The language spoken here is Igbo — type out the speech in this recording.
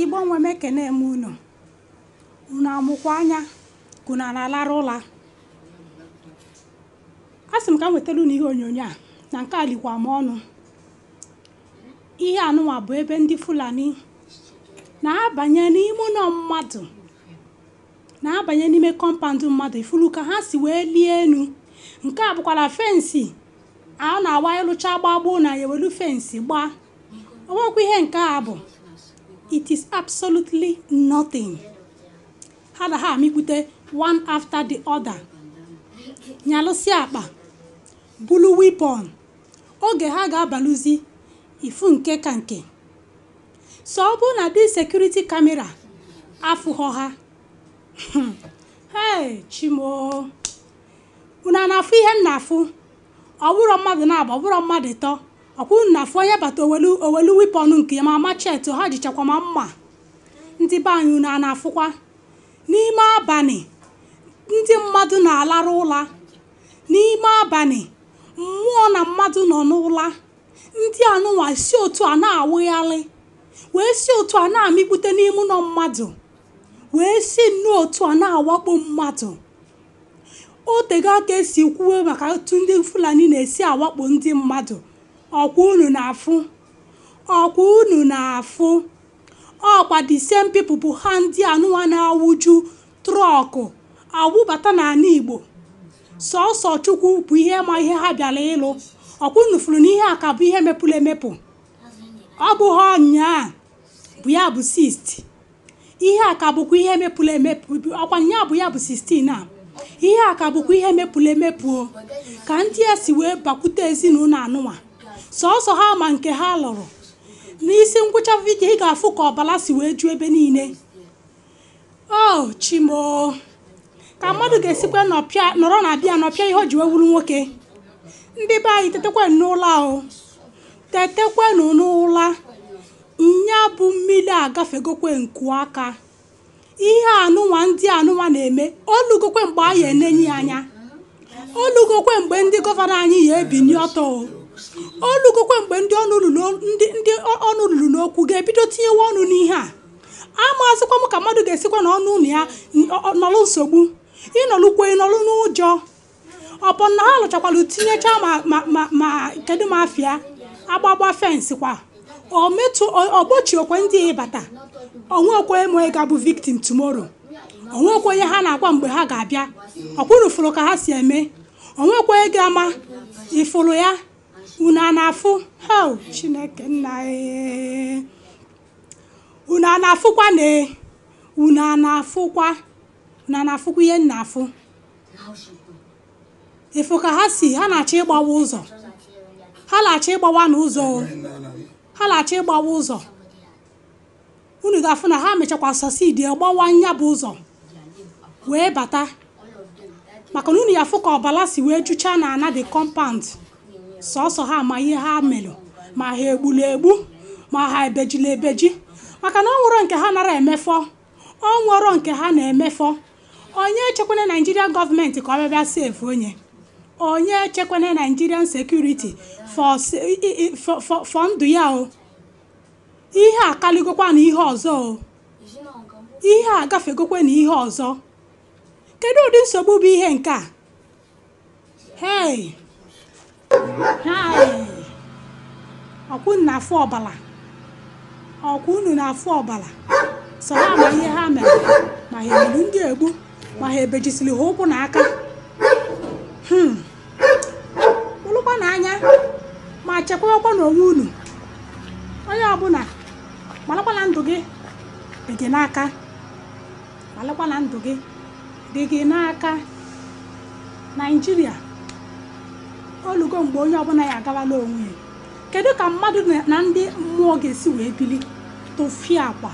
Ịgbanwe nwe m ekene m unu unu amụkwa anya kuna na-alara ụla a sị m ka m nwetara unu ihe onyonyo a na nke a likwa m ọnụ ihe anụnwa bụ ebe ndị fulani na-abanye n'ime ụlọ mmadụ na-abanye n'ime kọmpandụ mmadụ ifuru ka ha si wee lie elu nke a bụkwara fensi a na-awa ịlụcha gbagbuo na ya ewelu fensi gbaa onwekwa ihe nke a bụ it is absolutely nothing ha na ha amịkwute one after the other nyalụsị akpa bulu weapon oge ha ga-abalụzi ifu nke ka nke so ọ bụrụ na dị sekuriti kamera afụghọ ha hei chimoo unu na-afụ ihe m na-afụ ọ mmadụ na-agba ọ mmadụ tọọ ọkwụrụ na afụ onye bata owelu owelu ọnụ nke ya ma machet ha jichakwa ma mma ndị be anyị na-afụkwa n'ime abalị ndị mmadụ na-alarụ ụla n'ime abalị mmụọ na mmadụ nọ n'ụla ndị anụnwa si otu a na-awụgharị wee si otu a na-amịkpute n'ime ụlọ mmadụ wee si nnụọ otu a na-awakpo mmadụ otego aka esi kwuwe maka otu ndị fulani na-esi awakpo ndị mmadụ ọkwa unu na-afụ ọkwa unu na-afụ ọkwa the same people bụ ha ndị anụwa na-awụju trọkụ awụbata n'ala igbo sọsọ chukwu bụ ihe ma ihe ha bịara ịlụ ọkwa unu fụrụ n'ihe ihe a ka bụ ihe mepụrụ emepụ ọ bụghị ọnya bụ ya bụ 60 ihe a ka bụkwa ihe mepụrụ emepụ ọkwa nya bụ ya bụ sistin a ihe a ka bụkwa ihe mepụrụ emepụ ka ndị a si wee bakwute ezinụlọ anụnwa sọsọ ha ma nke ha lụrụ n'isi ngwụcha vidio ị ga-afụ ka ọbara si wee ju ebe niile o chimoo ka mmadụ ga-esikwa nọrọ na abịa nọpịa ihe o ji wee nwoke ndị be anyị tetekwa n'ụla ahụ tetekwenu n'ụla nya bụ mmiri agafegokwe nku aka ihe anụnwa ndị anụnwa na-eme olugokwe mgbe anyị enenye anya olugokwe mgbe ndị gọvanọ anyị ya ebinye ọtọ olugokwa mgbe ndị ọnụ ndị ọnụ lulu n'okwu ga-ebido tinyewa ọnụ n'ihe a amazịkwa m ka mmadụ ga-esikwa na ọnụ ụlọ ya nọlụ nsogbu ịnọlụkwe ịnọlụ n'ụjọ ọbụ ha lụchakwara tinyechaa ma kedu ma afịa agbagba fensị kwa okwe ndị ịbata onwekwe ma ị ga victim tomorrow onwekwe onye ha na-agwa mgbe ha ga-abịa ọkwụrụ fụrụ ka ha si eme onwekwe ga-ama ịfụrụ ya una a na-afụ chineke nna na-afụkwa na e? unu na-afụkwa ihe nna-afụ ịfụ ka ha si ha na-achọ ịgbawa ụzọ ha na-achọ ịgbawa n'ụzọ ha na acha ịgbawa ụzọ unu ga-afụ na ha mechakwa sosidi gbawa nya bụ ụzọ wee bata maka na unu ya afụ ka ọbala si wee jụchaa na ana the compound sọsọ ha ma ihe ha melụ ma ha egbula egbu ma ha ebejila ebeji maka na ọ nwụrụ nke ha nara emefọ ọ nke ha na-emefọ onye echekwene naijirian gọọmenti ka ọ bịa bịa sefu onye onye echekwene naijirian sekuriti fọ ndụ ya o ihe akaligokwa na ihe ọzọ o ihe a na ihe ọzọ kedu ụdị nsogbu bụ ihe nke a hei ọkwụ na afọ ọbala ọkwụ unu na afụ ọbala sọ ha ma ihe ha mere ma ha egburu ndị egbu ma ha ebejisiri ha ụkwụ na aka ụlụkwa hmm. na anya ma chekwawakwa n'onwe unu onye ọbụla gbalakwana ndụ gị dị gị n'aka gbalakwana ndụ gị dị gị n'aka naijiria olugo mgbe onye ọbụla ya agawala onwe ya kedu ka mmadụ na ndị mmụọ ga-esi wee bili tofie akwa